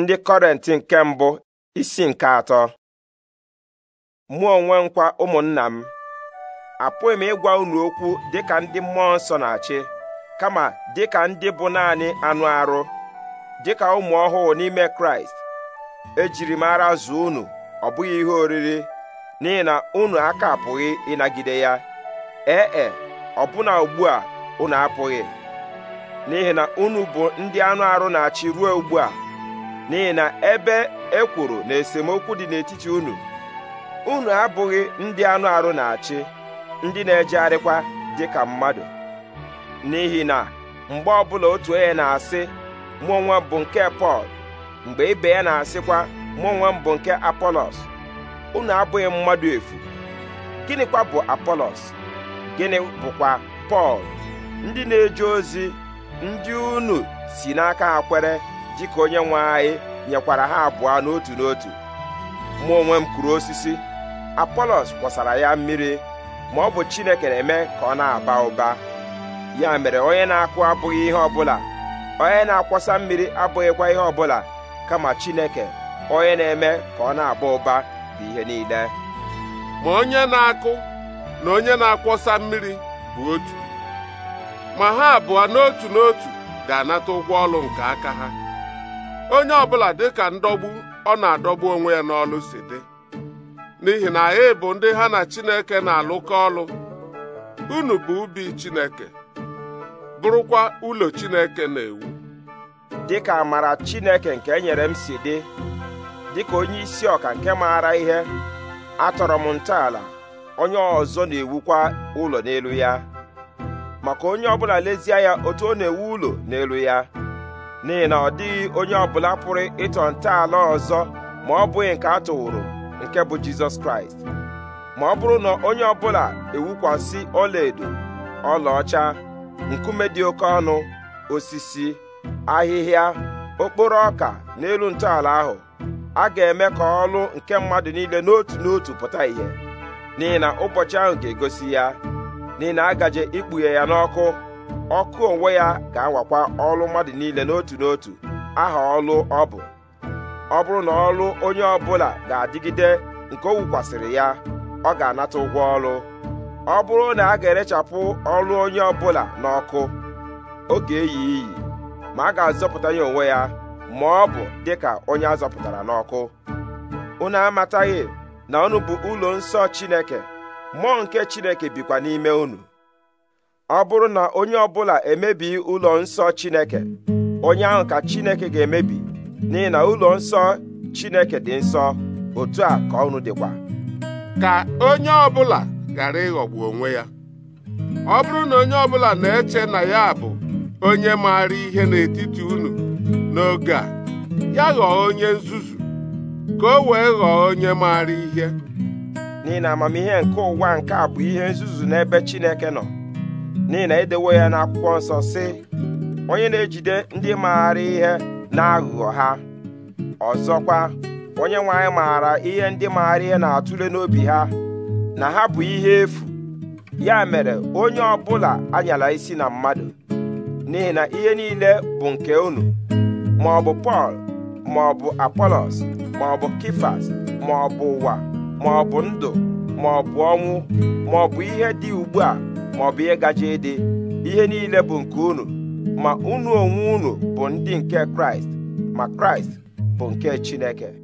ndị kọrent nke mbụ isi nke atọ mụ onwe nkwa ụmụnna m apụghị m ịgwa unu okwu dịka ndị mmụọ nsọ na-achị kama dịka ndị bụ naanị anụ arụ dịka ụmụ ọhụụ n'ime kraịst ejiri m ara unu ọ bụghị ihe oriri n'ihi na unu aka apụghị ịnagide ya ee e, e ọbụna ugbu a unu apụghị n'ihi na unu bụ ndị anụ arụ na-achị ruo ugbu a n'ihi na ebe e kwuru na esemokwu dị n'etiti unu unu abụghị ndị anụ arụ na-achị ndị na-ejegharịkwa ka mmadụ n'ihi na mgbe ọbụla otu onye na-asị mụ bụ nke Pọl mgbe ibe ya na-asịkwa mụ onwe bụ nke Apolos unu abụghị mmadụ efu gịnịkwa bụ Apolos gịnị bụkwa Pọl ndị na-eje ozi ndị unu si n'aka ha kwere dịka onye nwe anyị nyekwara ha abụọ n'otu n'otu mụ onwe m kụrụ osisi apolos kwọsara ya mmiri ma ọ bụ chineke na-eme ka ọ na-aba ụba ya mere onye na-akụ abụghị ihe ọbụla onye na-akwọsa mmiri abụghịkwa ihe ọbụla kama chineke onye na-eme ka ọ na-aba ụba bụ ihe niile ma onye na-akụ na onye na-akwọsa mmiri bụ otu ma ha abụọ n'otu n'otu ga-anata ụgwọ ọlụ nke aka ha onye ọbụla ka ndọgbu ọ na-adọgbu onwe ya n'ọlụ si dị n'ihi na anyị bụ ndị ha na Chineke na-alụkọ ọlụ unu bụ ubi Chineke bụrụkwa ụlọ Chineke na-ewu Dị ka amara Chineke nke enyere m si dị dị ka onye isi ọka nke maara ihe atọrọ m ntọala onye ọzọ na-ewukwa ụlọ n'elu ya maka onye ọbụla lezie ya otu ọ na-ewu ụlọ n'elu ya n'ihi na ọ dịghị onye ọbụla pụrụ ịtọ ntọala ọzọ ma ọ bụghị nke a tụwụrụ nke bụ jizọs kraịst ma ọ bụrụ na onye ọbụla ewukwasị ọlaedo ọlaọcha nkume dị oke ọnụ osisi ahịhịa okporo ọka n'elu ntọala ahụ a ga-eme ka ọlụ nke mmadụ niile n'otu n'otu pụta ìhè n'ihi na ụbọchị ahụ ga-egosi ya n'ihi na a gaje ikpughe ya n'ọkụ ọkụ onwe ya ga-awakwa ọlụ mmadụ niile n'otu n'otu aha ọlụ ọ bụ ọ bụrụ na ọlụ onye ọbụla ga-adịgide nke o wukwasịrị ya ọ ga-anata ụgwọ ọlụ ọ bụrụ na a ga-erechapụ ọlụ onye ọbụla n'ọkụ ọ ga-eyi iyi ma a ga-azọpụta ya onwe ya ma ọ bụ dịka onye a zọpụtara n'ọkụ unu amataghị na unu bụ ụlọ nsọ Chineke mmụọ nke Chineke bikwa n'ime unu ọ bụrụ na onye ọbụla emebi ụlọ nsọ Chineke onye ahụ ka Chineke ga-emebi n'ihi na ụlọ nsọ Chineke dị nsọ otu a ka ọnụ dịkwa ka onye ọbụla ghara ịghọgbu onwe ya ọ bụrụ na onye ọbụla na-eche na ya bụ onye maara ihe n'etiti unu n'oge a ya ghọọ onye nzuzu ka o wee ghọọ onye maara ihe n'ihi na amamihe nke ụwa nke a bụ ihe nzuzu n'ebe Chineke nọ n'ihi na edewo ya n'akwụkwọ nsọ sị onye na-ejide ndị maara ihe n'aghụghọ ha ọzọkwa onye nwe anyị maara ihe ndị maara ihe na-atụle n'obi ha na ha bụ ihe efu ya mere onye ọbụla anyala isi na mmadụ n'ihi na ihe niile bụ nke unu ma ọ bụ Pọl ma ọ bụ Apolos ma ọ bụ Kifas ma ọ bụ ụwa ma ọ bụ ndụ ma ọ bụ ọnwụ ma ọ bụ ihe dị ugbu a Ma maọbụ ihe gaje ịdị ihe niile bụ nke unu ma unu onwe unu bụ ndị nke kraịst ma kraịst bụ nke chineke